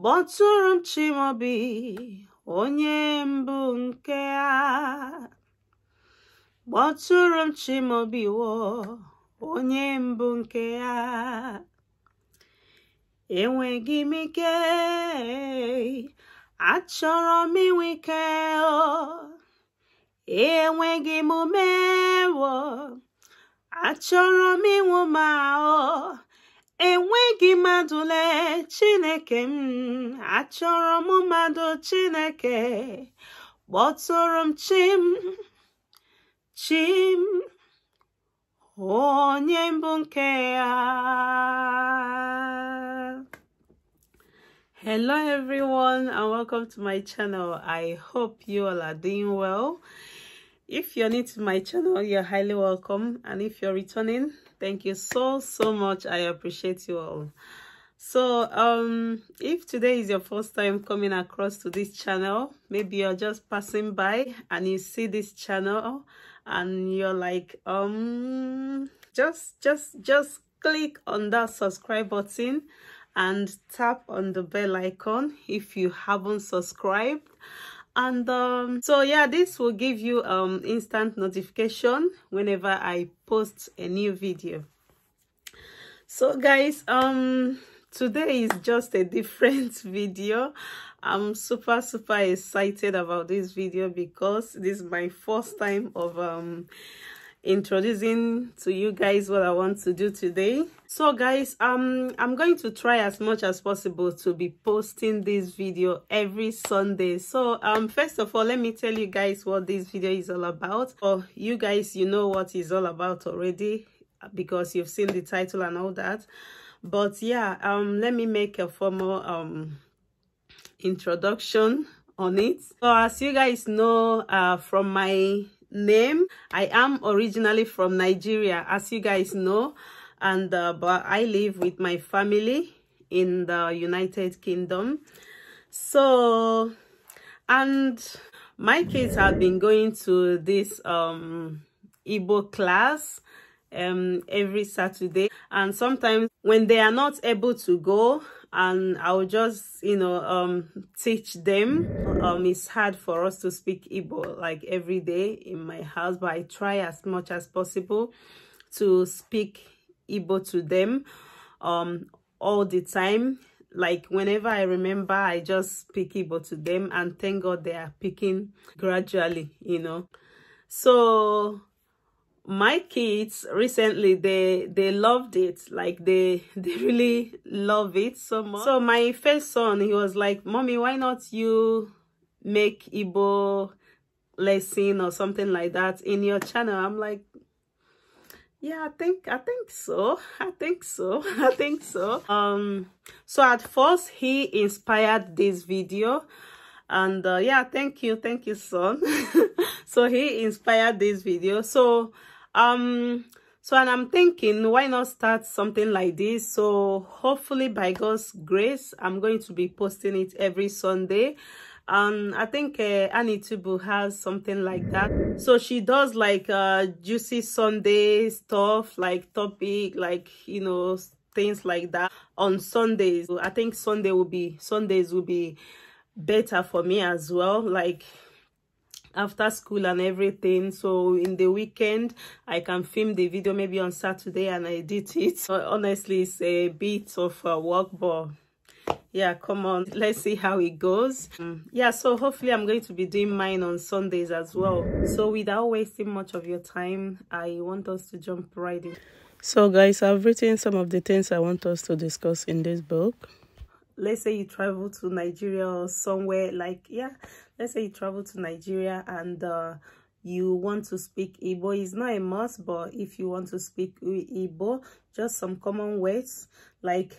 kpọtụrụ m onye mbụ nke a wo onye mbụ nke ya enweghị m ike achọrọ m inwe ike enweghị m ume achọrọ m inwe ma ọ enweghị mmadụ lee chineke m achọrọ m mmadụ chineke kpọtụrụ m chim chim onye mbụ nke ya hello everyone and welcome to my channel i hope you all are doing well if you're new to my channel you're highly welcome and if you're returning Thank you so, so much. I appreciate you all. So, um, if today is your first time coming across to this channel, maybe you're just passing by and you see this channel and you're like, um, just, just, just click on that subscribe button and tap on the bell icon if you haven't subscribed and um, so yeah this will give you um instant notification whenever i post a new video so guys um today is just a different video i'm super super excited about this video because this is my first time of um introducing to you guys what i want to do today so guys um i'm going to try as much as possible to be posting this video every sunday so um first of all let me tell you guys what this video is all about or oh, you guys you know what is all about already because you've seen the title and all that but yeah um let me make a formal um introduction on it so as you guys know uh from my name. I am originally from Nigeria, as you guys know, and uh, but I live with my family in the United Kingdom. So, and my kids have been going to this um, Igbo class um, every Saturday. And sometimes when they are not able to go, and I'll just, you know, um, teach them. Um, it's hard for us to speak Igbo like every day in my house, but I try as much as possible to speak Igbo to them um, all the time. Like whenever I remember, I just speak Igbo to them and thank God they are picking gradually, you know. So my kids recently they they loved it like they they really love it so much so my first son he was like mommy why not you make Igbo lesson or something like that in your channel i'm like yeah i think i think so i think so i think so um so at first he inspired this video and uh, yeah thank you thank you son so he inspired this video so um so and i'm thinking why not start something like this so hopefully by god's grace i'm going to be posting it every sunday um i think uh, annie tubu has something like that so she does like uh juicy sunday stuff like topic like you know things like that on sundays i think sunday will be sundays will be better for me as well like after school and everything so in the weekend i can film the video maybe on saturday and I did it so honestly it's a bit of a work but yeah come on let's see how it goes mm, yeah so hopefully i'm going to be doing mine on sundays as well so without wasting much of your time i want us to jump right in so guys i've written some of the things i want us to discuss in this book let's say you travel to nigeria or somewhere like yeah let's say you travel to nigeria and uh, you want to speak Igbo. It's not a must, but if you want to speak Igbo, just some common words like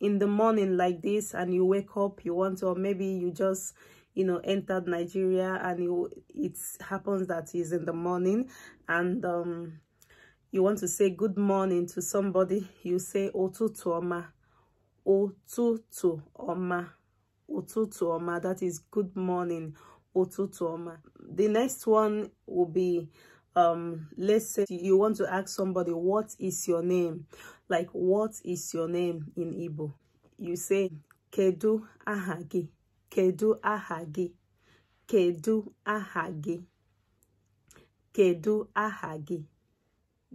in the morning like this and you wake up, you want to, or maybe you just, you know, entered Nigeria and you, it happens that is in the morning and um, you want to say good morning to somebody, you say Otutuoma ụtụtụ ọma ụtụtụ ọma that is good morning ụtụtụ ọma the next one will be um let's say you want to ask somebody what is your name like what is your name in Igbo you say kedu Ahagi, kedu Ahagi, kedu Ahagi, kedu Ahagi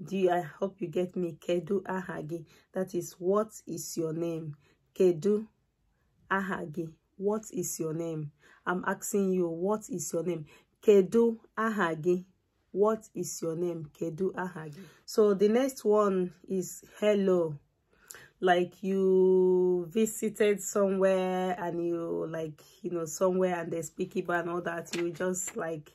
do you, I hope you get me Kedu Ahagi that is what is your name Kedu Ahagi what is your name I'm asking you what is your name Kedu Ahagi what is your name Kedu Ahagi so the next one is hello like you visited somewhere and you like you know somewhere and they speak Igbo and all that you just like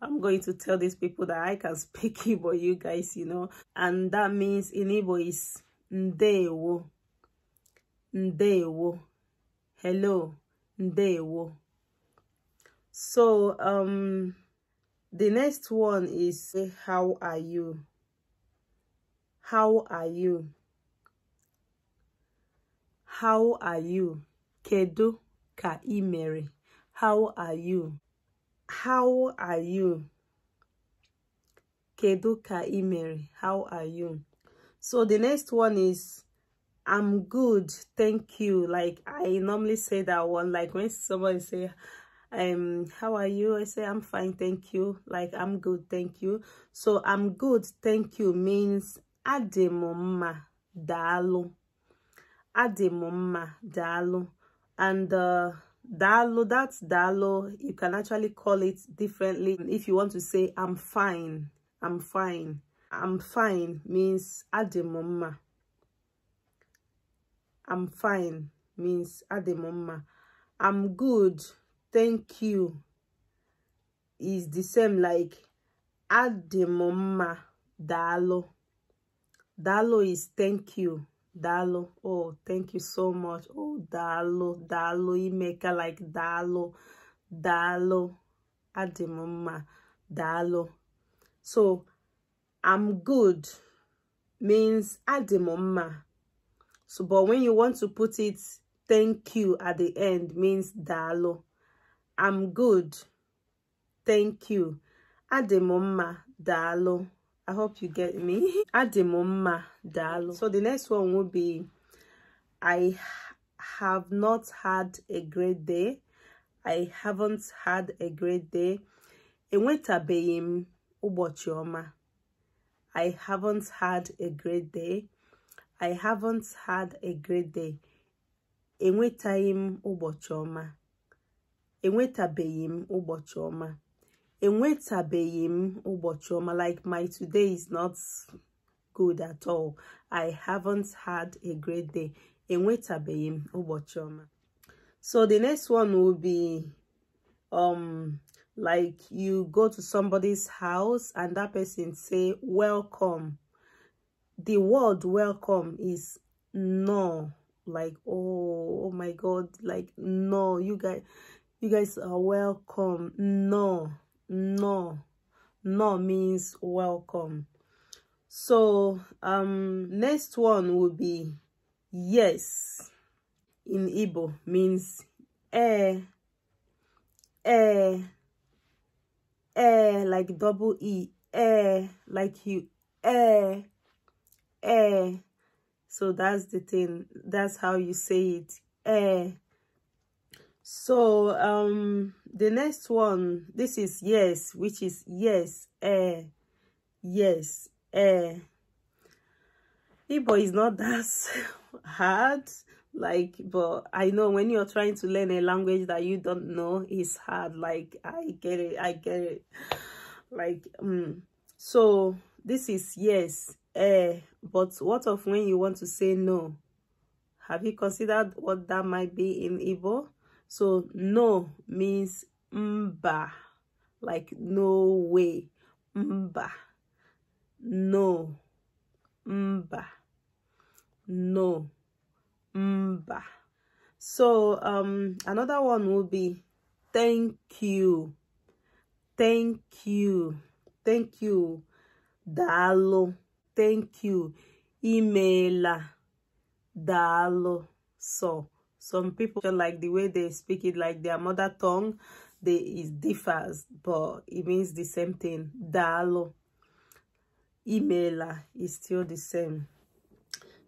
I'm going to tell these people that I can speak Igbo, you guys, you know. And that means in Igbo is ndewo, ndewo, hello, ndewo. So, um, the next one is how are you? How are you? How are you? Kedu ka imere? How are you? how are you? Kedu ka imeri? How are you? So the next one is I'm good, thank you. Like I normally say that one. Like when somebody say, um, how are you? I say I'm fine, thank you. Like I'm good, thank you. So I'm good, thank you means ademoma dalu. Ademoma dalu. And uh, Dalo, that's Dalo. You can actually call it differently. If you want to say, I'm fine, I'm fine. I'm fine means ademoma. I'm fine means ademoma. I'm good, thank you. Is the same like ademoma dalo. Dalo is thank you. Dalo. Oh, thank you so much. Oh, Dalo, Dalo, Imeka, like Dalo, Dalo, Adimuma, Dalo. So, I'm good means Adimuma. So, but when you want to put it, thank you at the end means Dalo. I'm good. Thank you. Adimuma, Dalo. I hope you get me. Adimoma Dalo. So the next one will be I have not had a great day. I haven't had a great day. Enwetabeghị m ụbọchị ọma. I haven't had a great day. I haven't had a great day. Enwetaghị m ụbọchị ọma. Enwetabeghị m ụbọchị ọma enwetabeghị m ụbọchị ọma like my today is not good at all i haven't had a great day enwetabeghị m ụbọchị ọma so the next one will be um like you go to somebody's house and that person say welcome the word welcome is no like oh oh my god like no you guys you guys are welcome no no no means welcome so um next one will be yes in Ibo means eh eh eh like double e eh like you eh eh so that's the thing that's how you say it eh so um the next one this is yes which is yes eh yes eh Igbo is not that hard like but i know when you're trying to learn a language that you don't know it's hard like i get it i get it like um so this is yes eh but what of when you want to say no have you considered what that might be in Igbo? So no means mba, like no way, mba, no, mba, no, mba. So um, another one will be thank you, thank you, thank you, dalo, thank you, imela, dalo, so some people like the way they speak it like their mother tongue they it differs but it means the same thing dalo emailer is still the same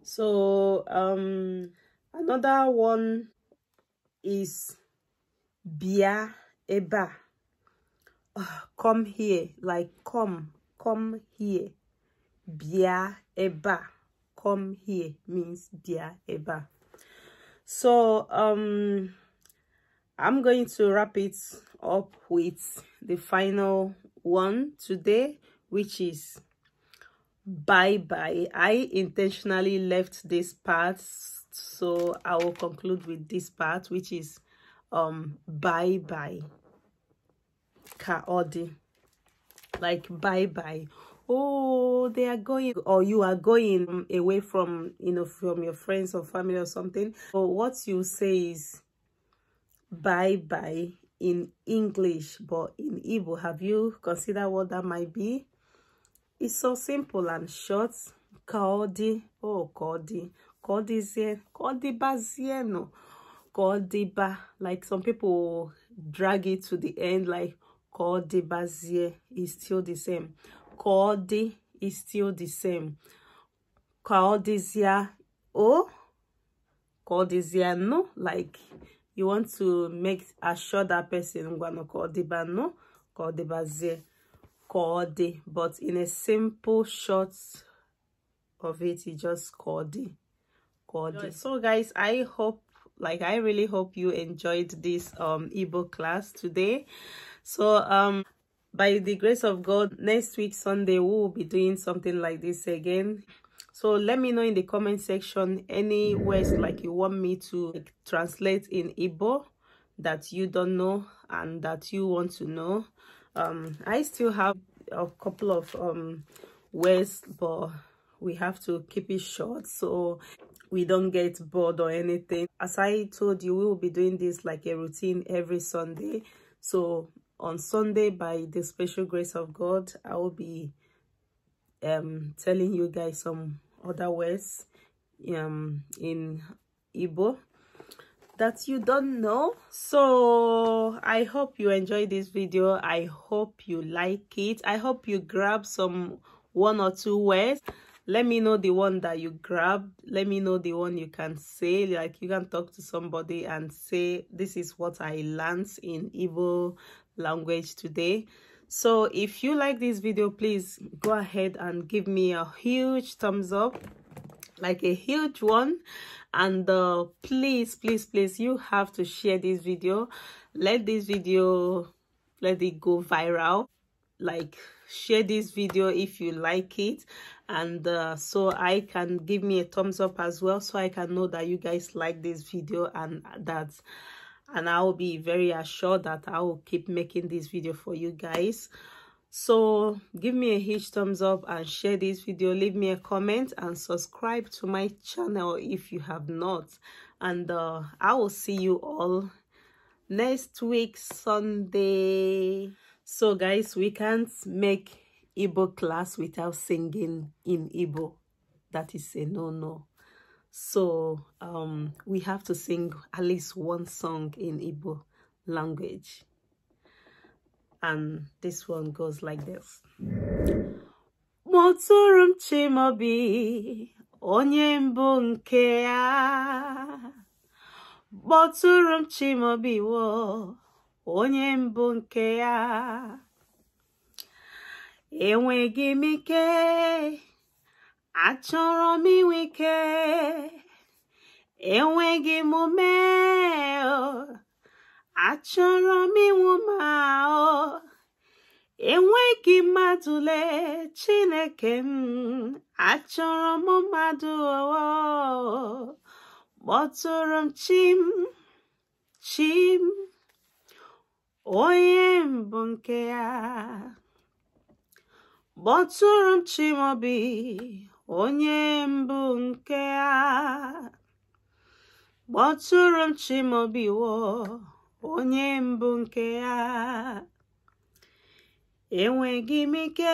so um another one is bia eba ah, come here like come come here bia eba come here means bia eba so um i'm going to wrap it up with the final one today which is bye bye i intentionally left this part so i will conclude with this part which is um bye bye kaodi like bye bye oh they are going or you are going away from you know from your friends or family or something but what you say is bye bye in english but in Ibo, have you considered what that might be it's so simple and short "Kodi," oh Kaodi, Kaodizien, "Kodi ba." Like some people drag it to the end, like Kaodibazie is still the same. Kaodi is still the same. oh, O, Kaodizia No, like you want to make assure that person Ngwano Kaodiba No, Kaodibazie, Kaodi. But in a simple short of it, you just called Kaodi. So guys, I hope like i really hope you enjoyed this um ebook class today so um by the grace of God, next week, Sunday, we will be doing something like this again. So let me know in the comment section any words like you want me to like, translate in Igbo that you don't know and that you want to know. Um, I still have a couple of um, words, but we have to keep it short so we don't get bored or anything. As I told you, we will be doing this like a routine every Sunday. So on Sunday, by the special grace of God, I will be um, telling you guys some other words um, in Igbo that you don't know. So I hope you enjoy this video. I hope you like it. I hope you grab some one or two words let me know the one that you grabbed let me know the one you can say like you can talk to somebody and say this is what i learned in Igbo language today so if you like this video please go ahead and give me a huge thumbs up like a huge one and uh, please please please you have to share this video let this video let it go viral like share this video if you like it and uh, so i can give me a thumbs up as well so i can know that you guys like this video and that and i will be very assured that i will keep making this video for you guys so give me a huge thumbs up and share this video leave me a comment and subscribe to my channel if you have not and uh, i will see you all next week sunday so guys we can't make Igbo class without singing in Igbo that is a no-no so um, we have to sing at least one song in Igbo language. And this one goes like this. Motorum Chimobi, onye mbụ nke ya. Motorum Chimobi wo, onye mbụ nke ya. Achọrọ m inwe ike enweghị m ume achọrọ m inwu ma enweghị mmadụ lee Chineke m achọrọ m mmadụ kpọtụrụ m chim chim onye mbụ nke ya kpọtụrụ m chimobi onye mbụ nke a kpọtụrụ m Chimaobiwo onye mbụ nke a enweghị m ike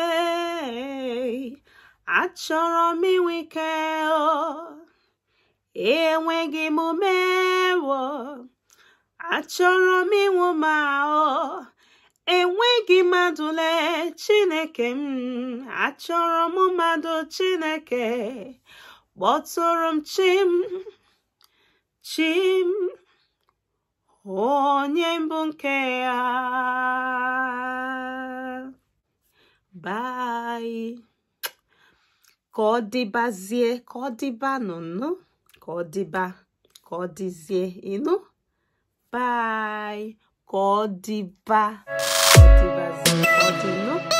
achọrọ m inwe ike enweghị m ume achọrọ m ịnwụ ma ọ enweghị mmadụ lee chineke m achọrọ m mmadụ chineke kpọtụrụ m chim chim onye mbụ nke ya bai ka ọ dịbazie ka ọ dịba nụnụ ka ọ dịba ka ọ dịzie ịnụ bai ka ọ dịba おじの